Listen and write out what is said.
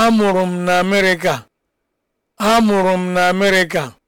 amụrụ m na Amerịka amụrụ m na Amerịka